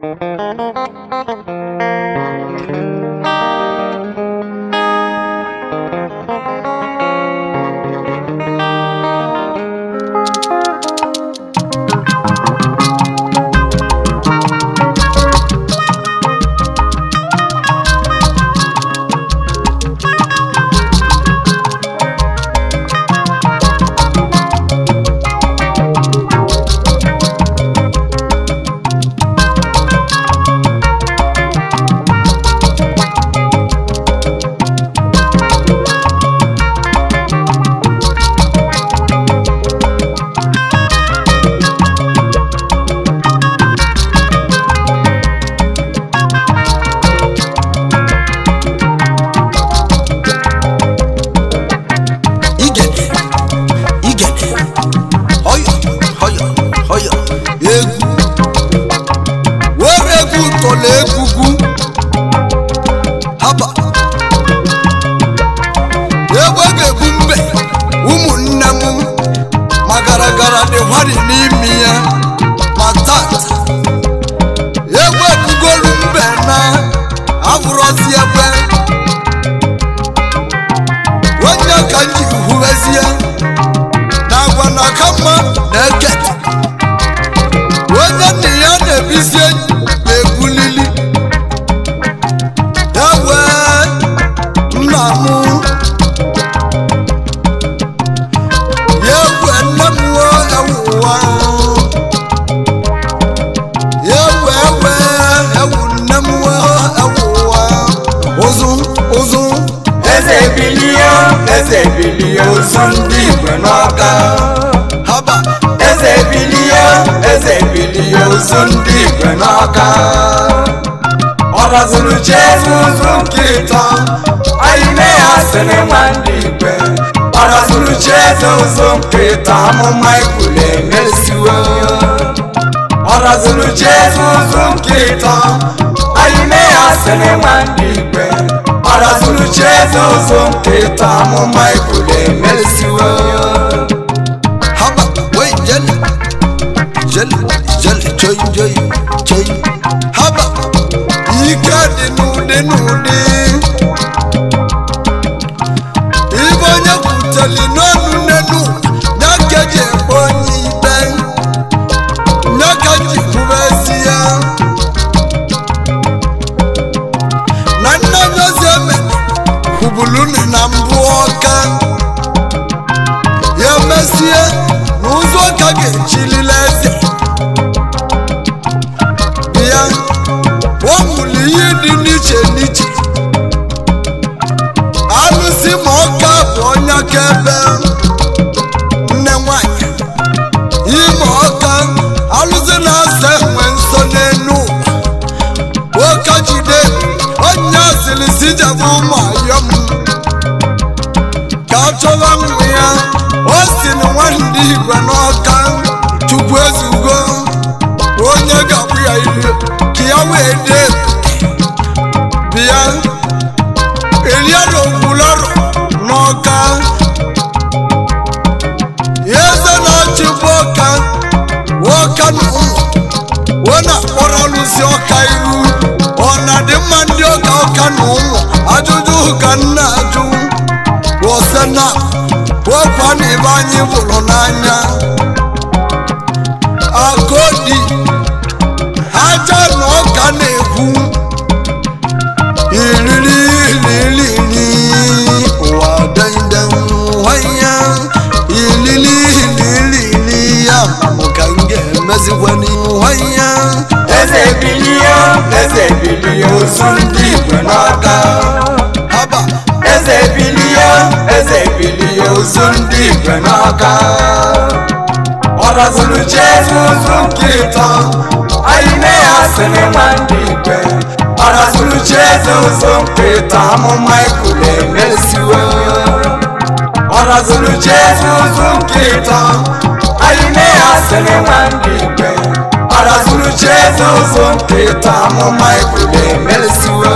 Thank you. gara dị nwari n'imi ya ma egwu egwepugolu mbe na abụrụzi ebe onye ka nji ji huwezie na agwa na aka mma na eketa kpọzuru Jizọs nke ịtọ ayime ya sịrị nwa ndị igwe ọ rọzuru Jizọs nke ịtọ amụma ikwulu emesiwo ayime ya sịrị nwa ndị igwe ọ rọzuru Jizọs nke Haba, wait, Jenny. nínú dé. kiawe de bia elia do bulor noka yeze na chiboka woka no wona oralu si oka iru ona ajuju kanna ju wosena wopani banyi na-ekwu iriri ililili ụwa dandan nwanya ilili ililili ya bụ ka m ga-emezikwa nwanya eze bilie eze bilie ozu ndị igwe n'aka haba eze bilie eze bilie ozu ndị igwe n'aka ọ̀rọ̀zụlụje n'ụzụ nke ịtọ anyị nne ya sịrị nwa ndị igwe ọ̀rọ̀zụlụje n'ụzụ nke ịtọ amụma ekwuru emeziwe ọ̀rọ̀zụlụje n'ụzụ nke ịtọ anyị nne ya sịrị nwa ndị igwe ọ̀rọ̀zụlụje n'ụzụ nke ịtọ amụma ekwuru emeziwe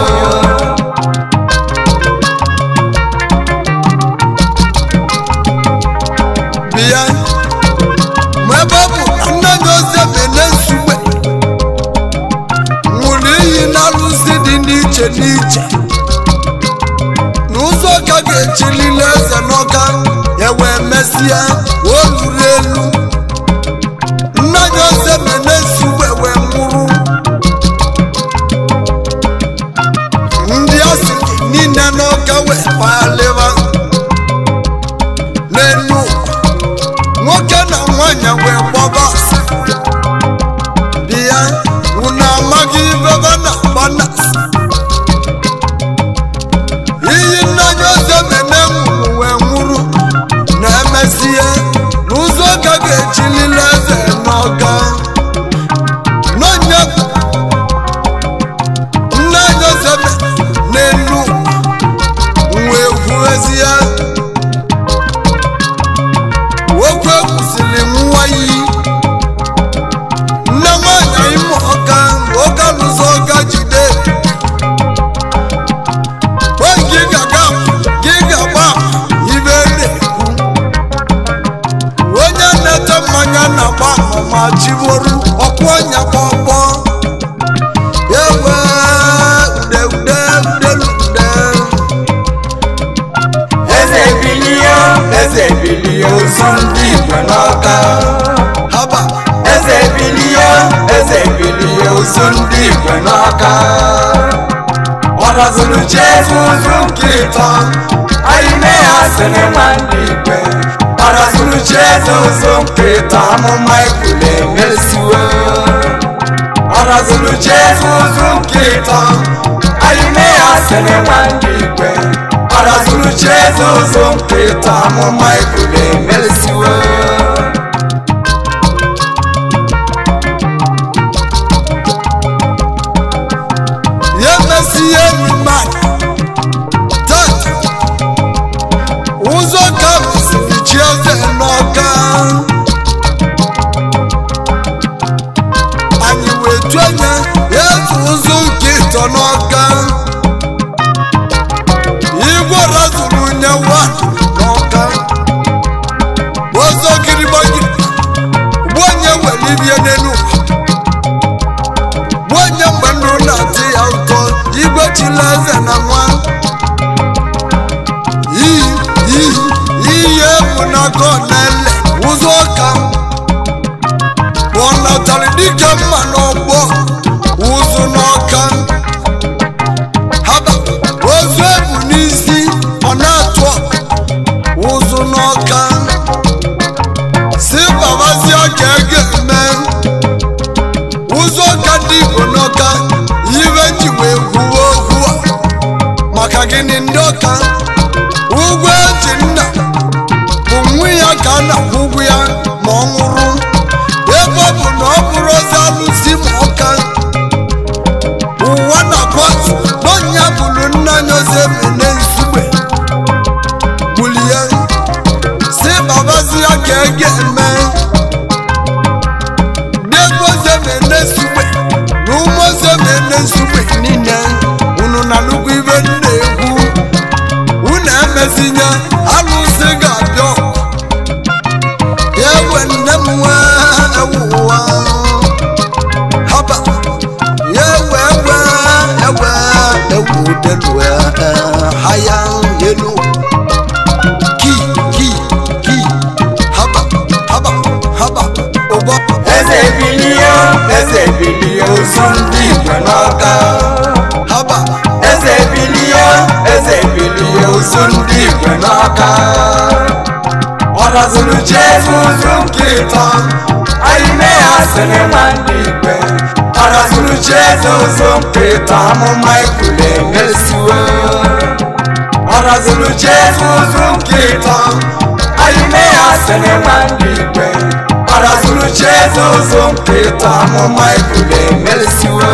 tamu maikule mesiwe arazulu jesuzu nkita ayime asene wandigwe arazulu Jesus umkita, mu maikule mesiwe tán ayílé àsìnìmá ní ìpẹ́ àràsùnú jésù tó ń pè tá a mú máìkù lẹ́wẹ́ sí o àràsùnú jésù tó ń pè tán ayílé àsìnìmá ní ìpẹ́ àràsùnú jésù tó ń pè tá a mú máìkù lẹ́wẹ́ sí o.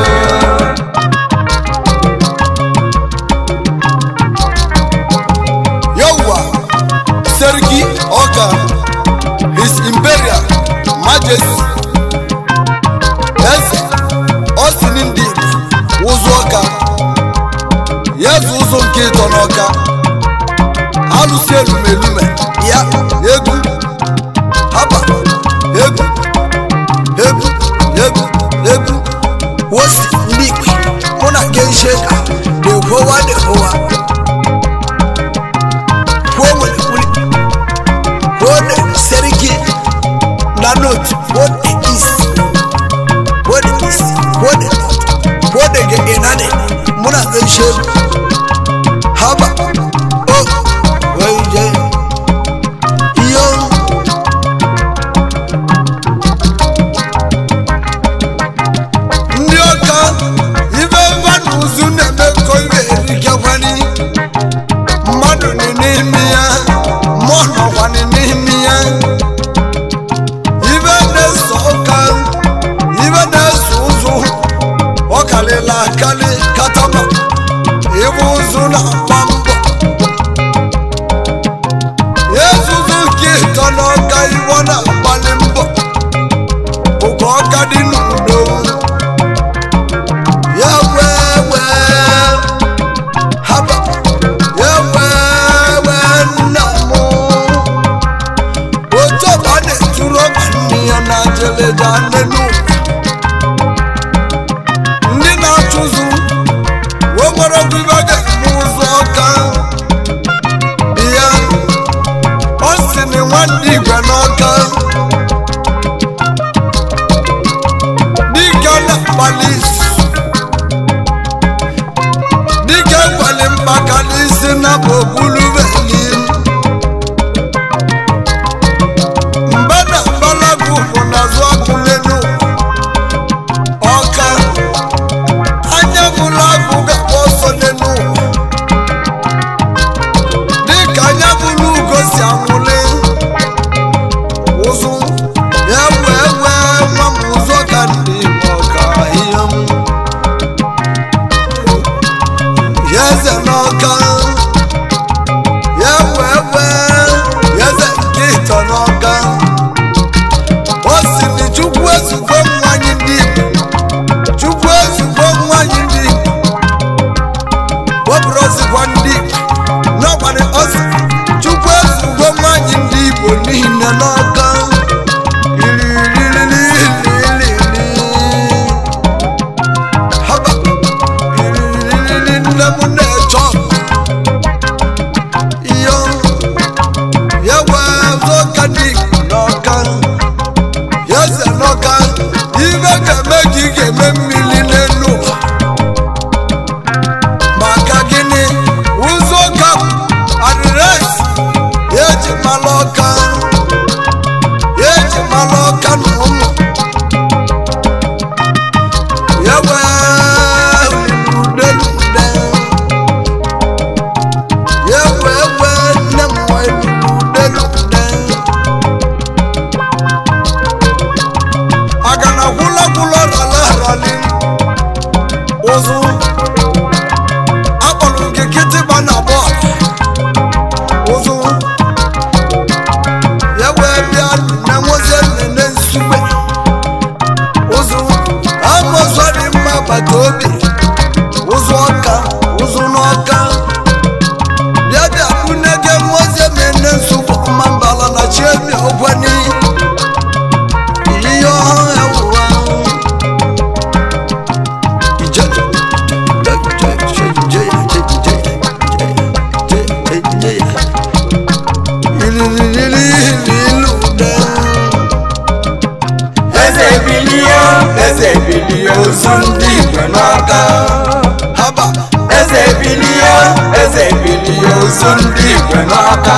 o ndị igwe n'aka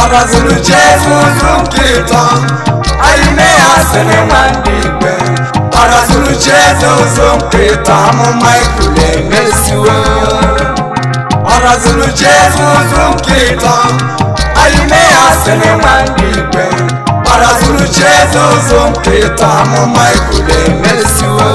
ọ gọziri Jesu nke ịtọ anyị nne o sịrị nwa ndị igwe ọ gọziri Jesu nke ịtọ amụma o emesiwo ọ gọziri Jesu nke a anyị nne ya sịrị o ndị igwe ọ gọziri Jesu nke ịtọ amụma ikule emesiwo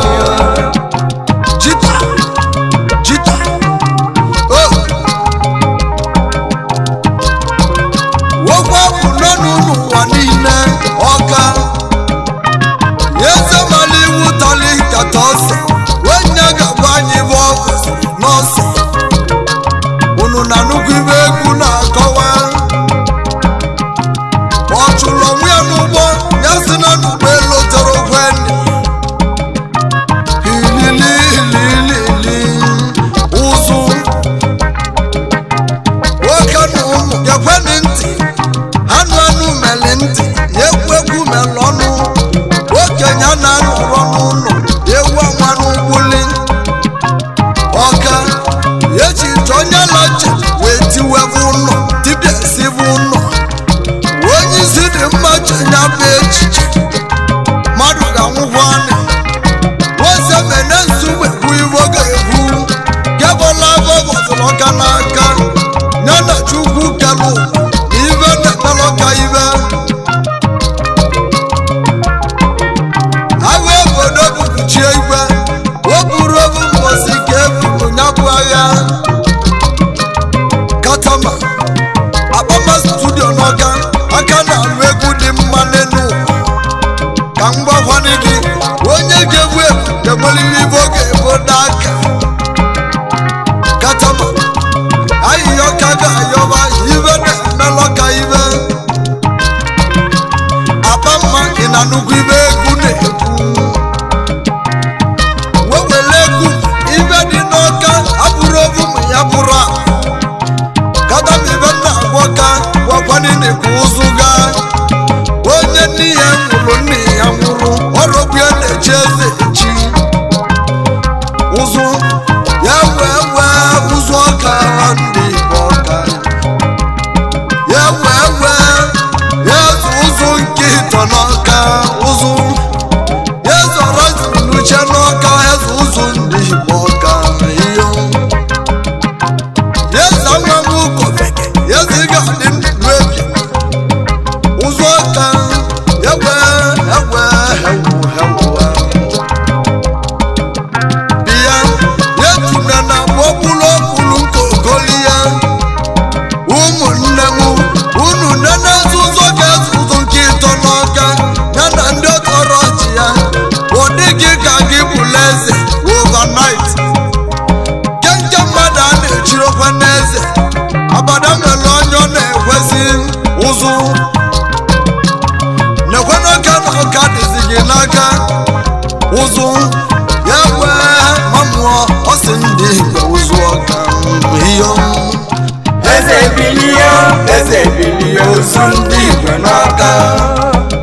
sunt din noaptea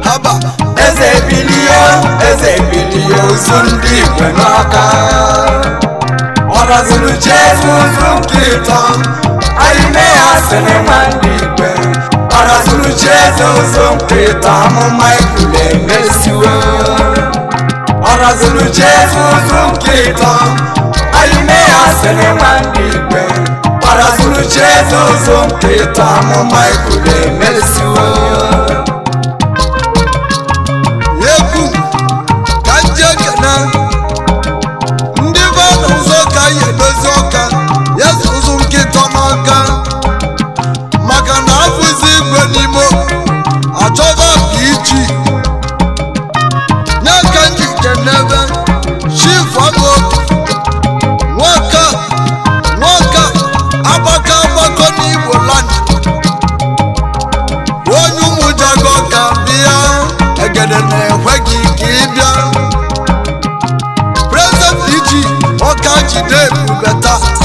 Haba, Ezebilio, Ezebilio sunt din noaptea Ora zulucesc un zumchita Ai mea să ne mandipe Ora zulucesc un zumchita Mă mai cule mesiuă Ora zulucesc un zumchita Ai mea să ne mandipe Mara sunu Jésù, zonke tamu mai kule mesiwo. ogede na-ekwe gị ka ị bịa prezident iji ọka jide ebubata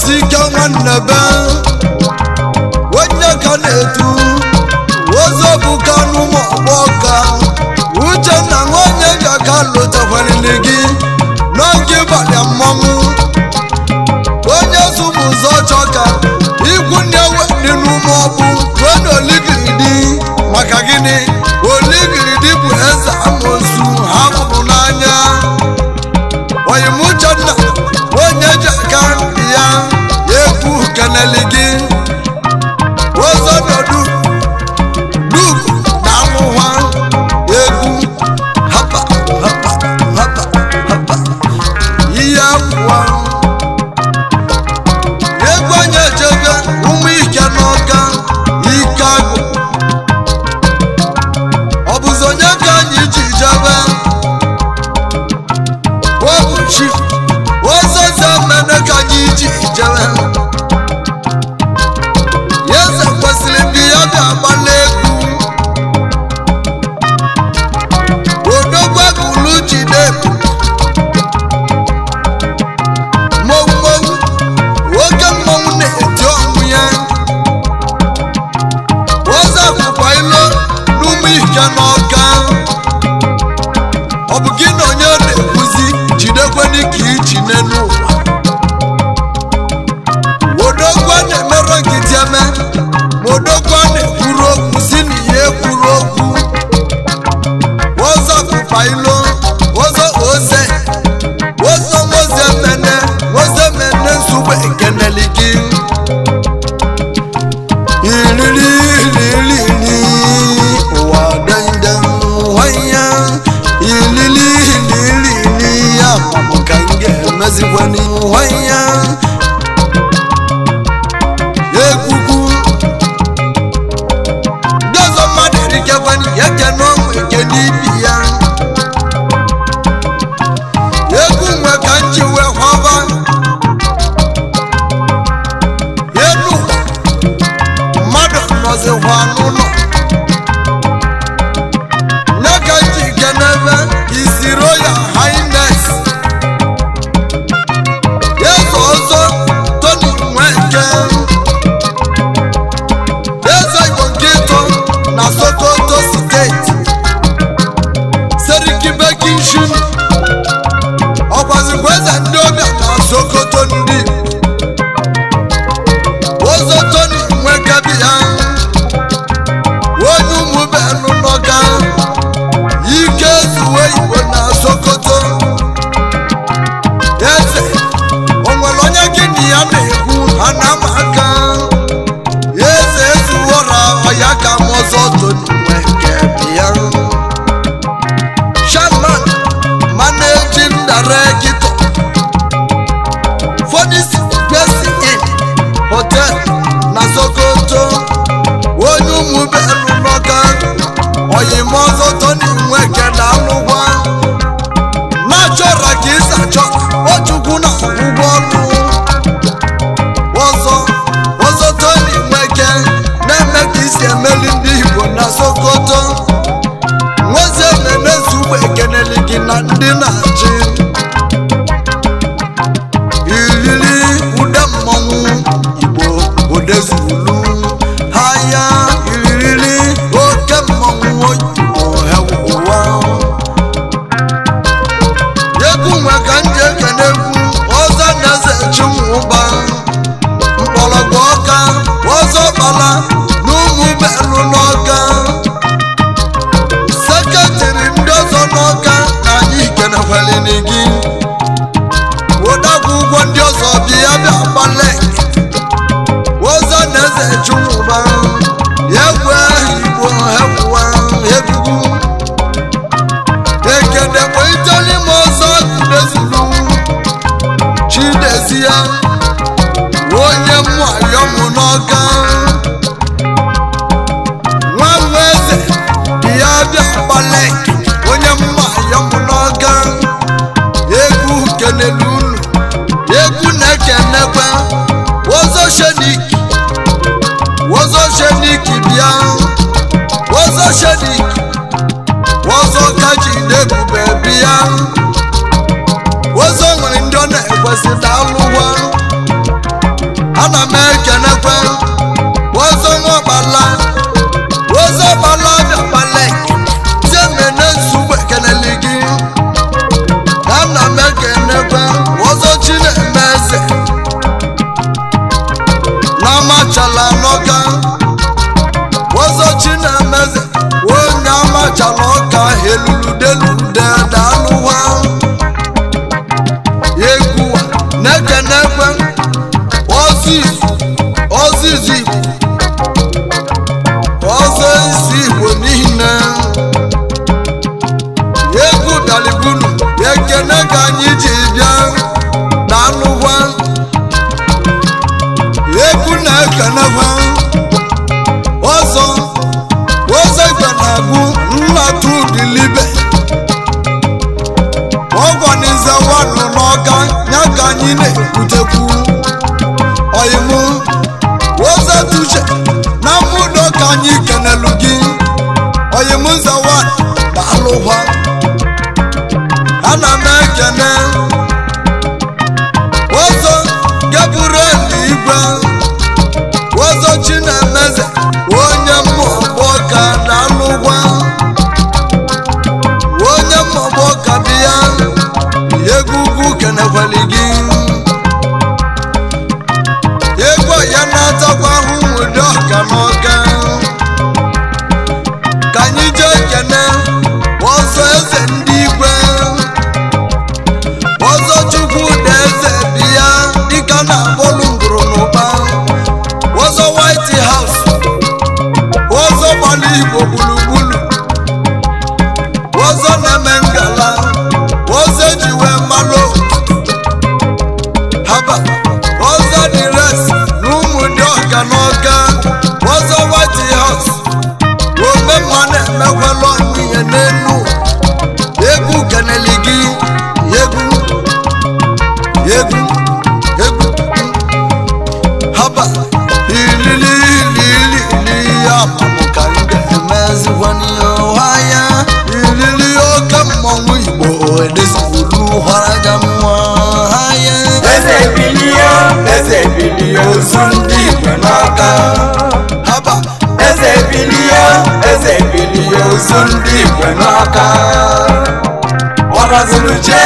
si on the be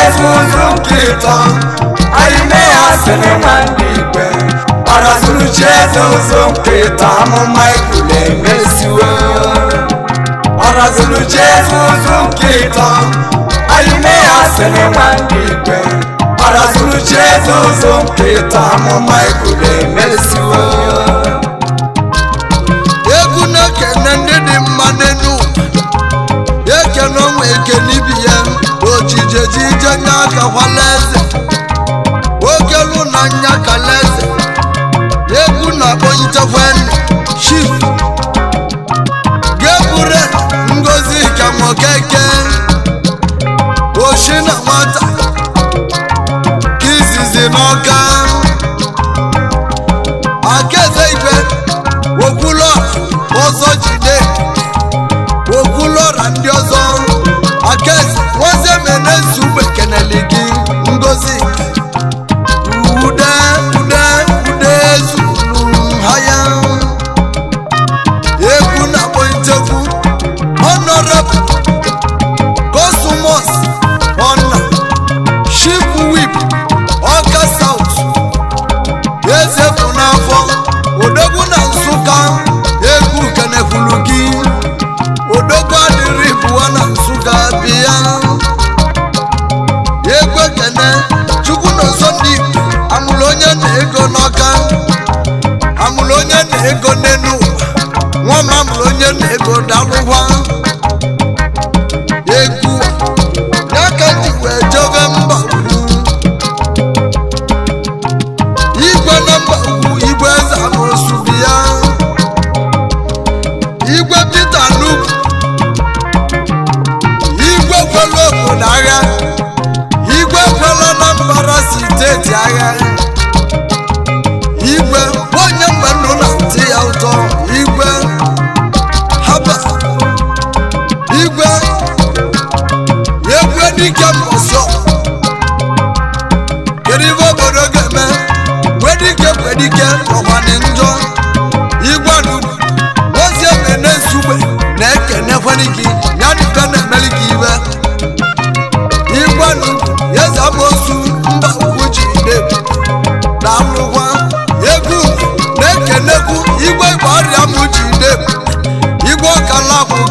Alex Muzum Clipton Alimea Seneman Libe Arazulu Chezo Zum Clipton Amu Michael Emesiwe Arazulu Chezo Zum Clipton Alimea Seneman Libe Arazulu Chezo Zum Clipton Amu Michael Emesiwe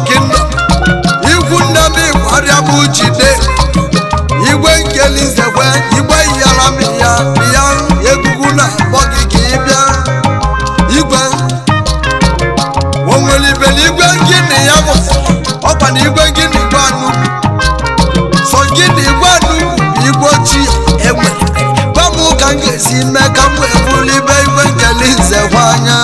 kingdom igwu ndebigbo arịabụ jide igwe nkelizekwe igbe yaramya ya egugu na akpọ gị ka ị bịa igwe onwere ibeligwe gịnị ya bụ ọkwa na igwe gịnị igwe anụ sọ gịnị igwe anụ igwe ojii enwe gwa m ka m ga-esi mee ka m wee bụrụ ibe igwe nkelize kwa anya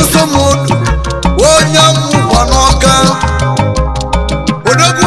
Usomodu onye mmụọ n'ọka odogwu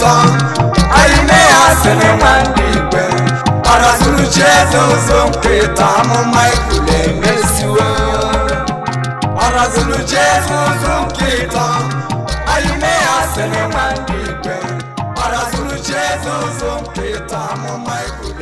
tán ayime asene nwanne igwe ọnọtụrụ chi eze ụzọ nkweta amụma ikwule emesiwo ọnọtụrụ chi eze ụzọ nkweta ayime asene nwanne igwe ọnọtụrụ chi eze ụzọ nkweta amụma ikwule